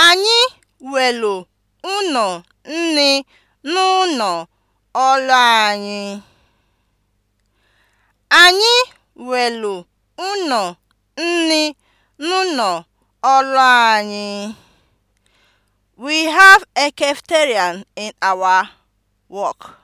Anyị welụ ụnọ nni n'ụnọ ọrụ anyị. We have a cafeterian in our work.